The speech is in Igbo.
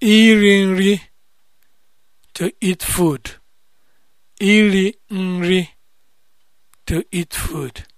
iri nri to eat food nri to eat food